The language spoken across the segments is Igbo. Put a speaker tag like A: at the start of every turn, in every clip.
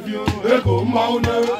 A: ego mmanwụ na-agba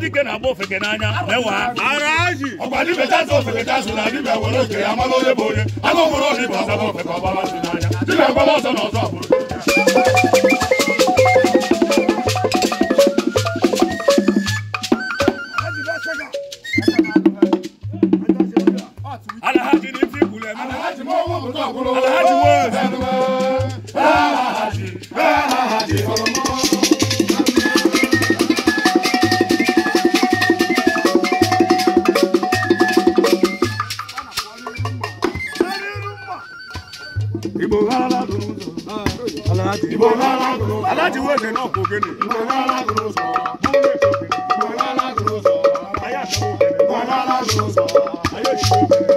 A: dike na-agba ofeke n'anya na-ewe ọkwa dibeta azụ ofeke azụ na dibia were oke ya mara onye bụ onye anụ nwere onye bụ ọzọ ofeke ọgbara azụ n'anya dibia gbara ọzọ na ọzọ alhaji ni fi kulẹ mi alhaji wo alhaji wo. aláàjì. ìbò lọ́la dúró sọ. aláàjì wo èdè náà kò génè. ìbò lọ́la dúró sọ. búrẹ́ ìbò lọ́la dúró sọ.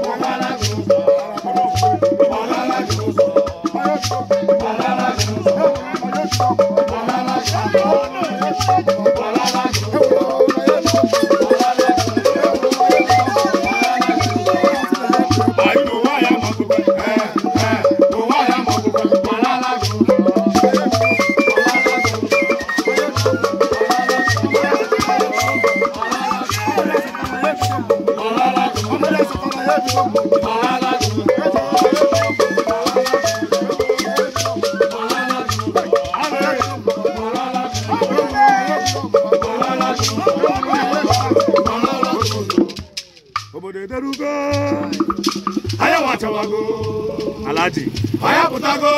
A: Alhaji. Aya putago.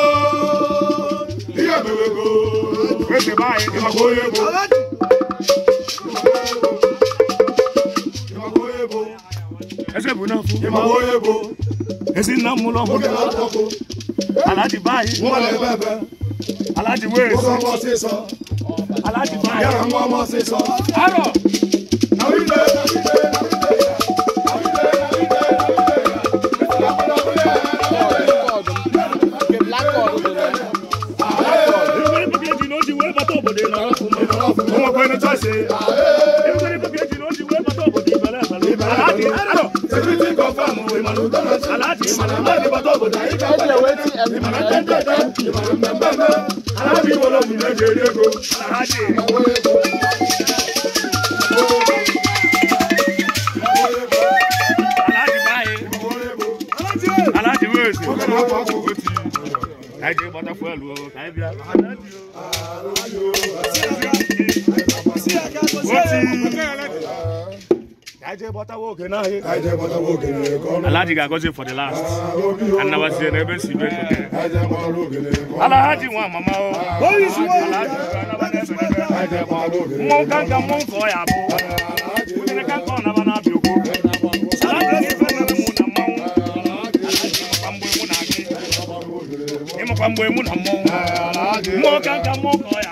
A: Iye bewego. Wese bayi. Iwa koyego. Alhaji. ẹsẹ̀ bò náà fún. ìmọ̀ wo yẹ bo. èsì náà mú lọ́mú. ó kẹ́ lọ́ tọ́ ko. aláàjì báyìí. wọ́n lè bẹ́ẹ̀ bẹ́ẹ̀. aláàjì wéèsì. ó sọ ọmọ sí sọ. aláàjì báyìí. yàrá ń wọ́n ọmọ sí sọ. àrò. aláàtì ìmọ̀ràn náà ní bọ́tọ̀ kò dáyé kápẹ́ ìmọ̀ràn tẹ́tẹ́tẹ́ ìmọ̀ràn mẹ́mẹ́mẹ́ aláàbí wọlé òmìnira ìdèrè ego aláàtì. aláàtì wéèsì káyidé bọ́tọ̀ fún ẹ̀lú ọ̀rọ̀ káyidé bíi aláàtì. wọ́n ti. Alhaji Gagozie for the last. Anabazie ah, the ebe si beko ke. Eh, Alhaji mama ah, Alhaji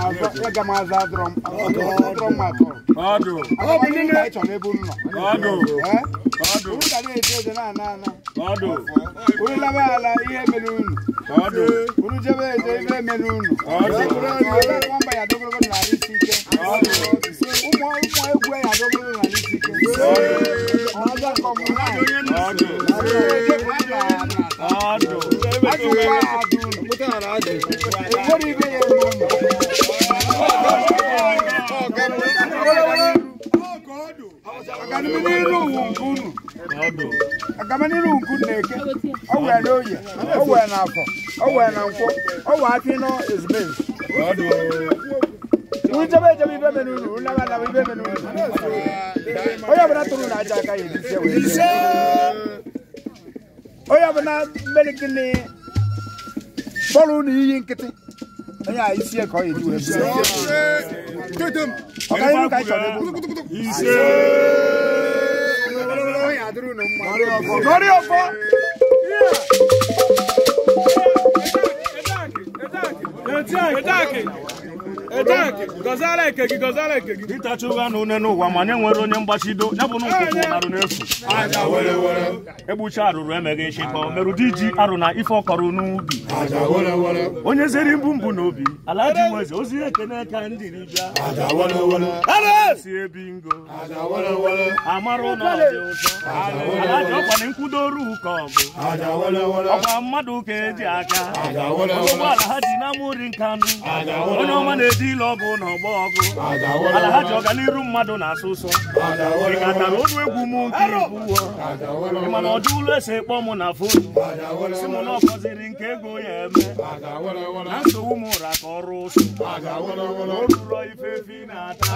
A: aga m aza adụrọ m na-eje na ike owe na owe n'afọ owe na ọ owe apị nọ ezumezu ujebe ejebe ibe mere uru unaba naba ibe mere uru onye ọbụla tụrụ na aja aka ya edizie onye ọbụla mmeri gịnị bọrụ na iyi nkịtị onye a isi ka ọ ya eji wee bụrụ ọkaihu ka anyị chọrọ ebu ọrịa ọfọ Attack it! Attack ịtacha na une n'ụwa ma nye nwere onye mgbachido ya bụ nkụkụ arụ n'efu egbucha arụrụ emeghị nchịkọ merụdị ji arụ na ife ọkọrọ n'ubi onye zere mbụ mbụ n'obi ala ji nweze ozi ekene ndị ribịa ebi ngo amara ụlọ dị ụtọ ala ji ọkwana nkwudoru ụka ọgụ ọkwa mmadụ ka eji aka ụgbọala ha dị na amụri nkanụ onye ọma na-eji ile ọ bụ na ọgụ ala ha ji ọganiru mmadụ na-asụ ụsọ ị katara egwu m nke ibuwo mana ọdụ ụlọ esi ekpọ mụ na foto si m na ọkọziri nke ego ya eme na nsogbu m ụra ka ọrụ ụsụ o ruro ifefi na-ata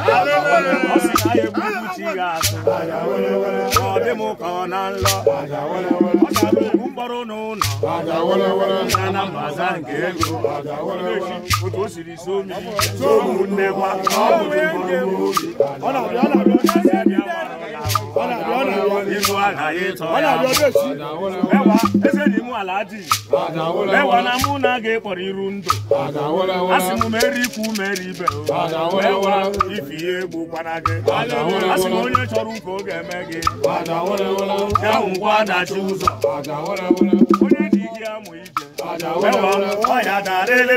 A: ọ sị na ya egbu chi ya asụ ọ dị m ka ọ na nlọ ọ gara ogbu mkpọrọ n'ụlọ na mbaza nke ego otu o siri so mmiri ụmụnne gwa ihu agaghị ịtọ eze dị mụ ala adịghị ewa na mụ na aga ịkpọrọ iru ndụ asị m mere ikwu mere ibe ewa ife ihe egbu na gị asị m onye chọrọ ụka ọ ga-eme gị ya ngwa adachi ụzọ onye ji gị amụ ije ewa ọya darịlị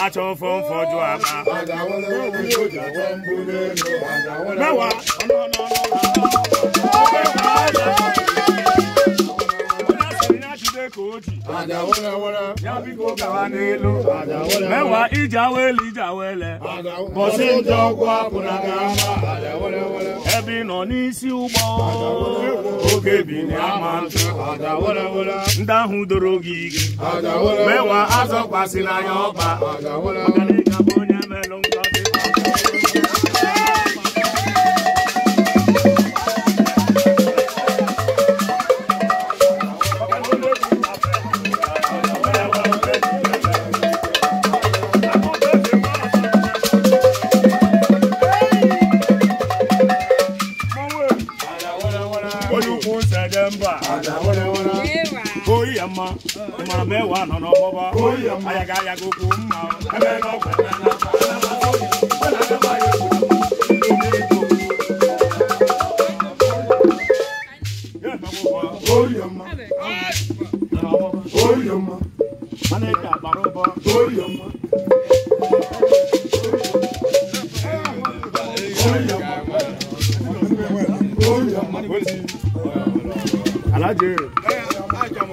A: atọ́fó ń fọjú àbá. mẹ́wàá mẹ́wàá ìjà wẹ́lì ìjà wẹ́lẹ̀ bọ̀sí ń jọ kó àpùnà kan bá àdàwọ̀lẹ̀ wọ̀. ebe nọ n'isi ụgbọ oge bi ama ndị ahụ doro gị ige mewa azọkwasị n'anya ọba na mẹ́wàá nọ n'ọmọbọ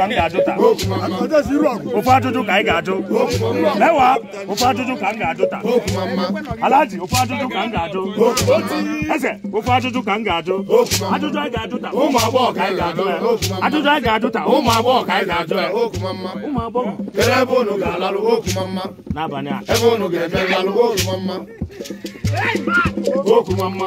A: ka m ga-ajụ taa ofe ajụjụ ka anyị ga-ajụ lewa ofe ajụjụ ka m ga-ajụ taa alaji ofe ajụjụ ka m ga-ajụ eze ofe ajụjụ ka m ga-ajụ ajụjụ anyị ga-ajụ taa ụmụ agbọghọ ka anyị ga-ajụ ya ajụjụ anyị ga-ajụ taa ụmụ agbọghọ ka anyị ga-ajụ ya ụmụ agbọghọ kere ebe unu ga-alalụ okumama n'abalị a ebe unu ga-eme nlalụ okumama okumama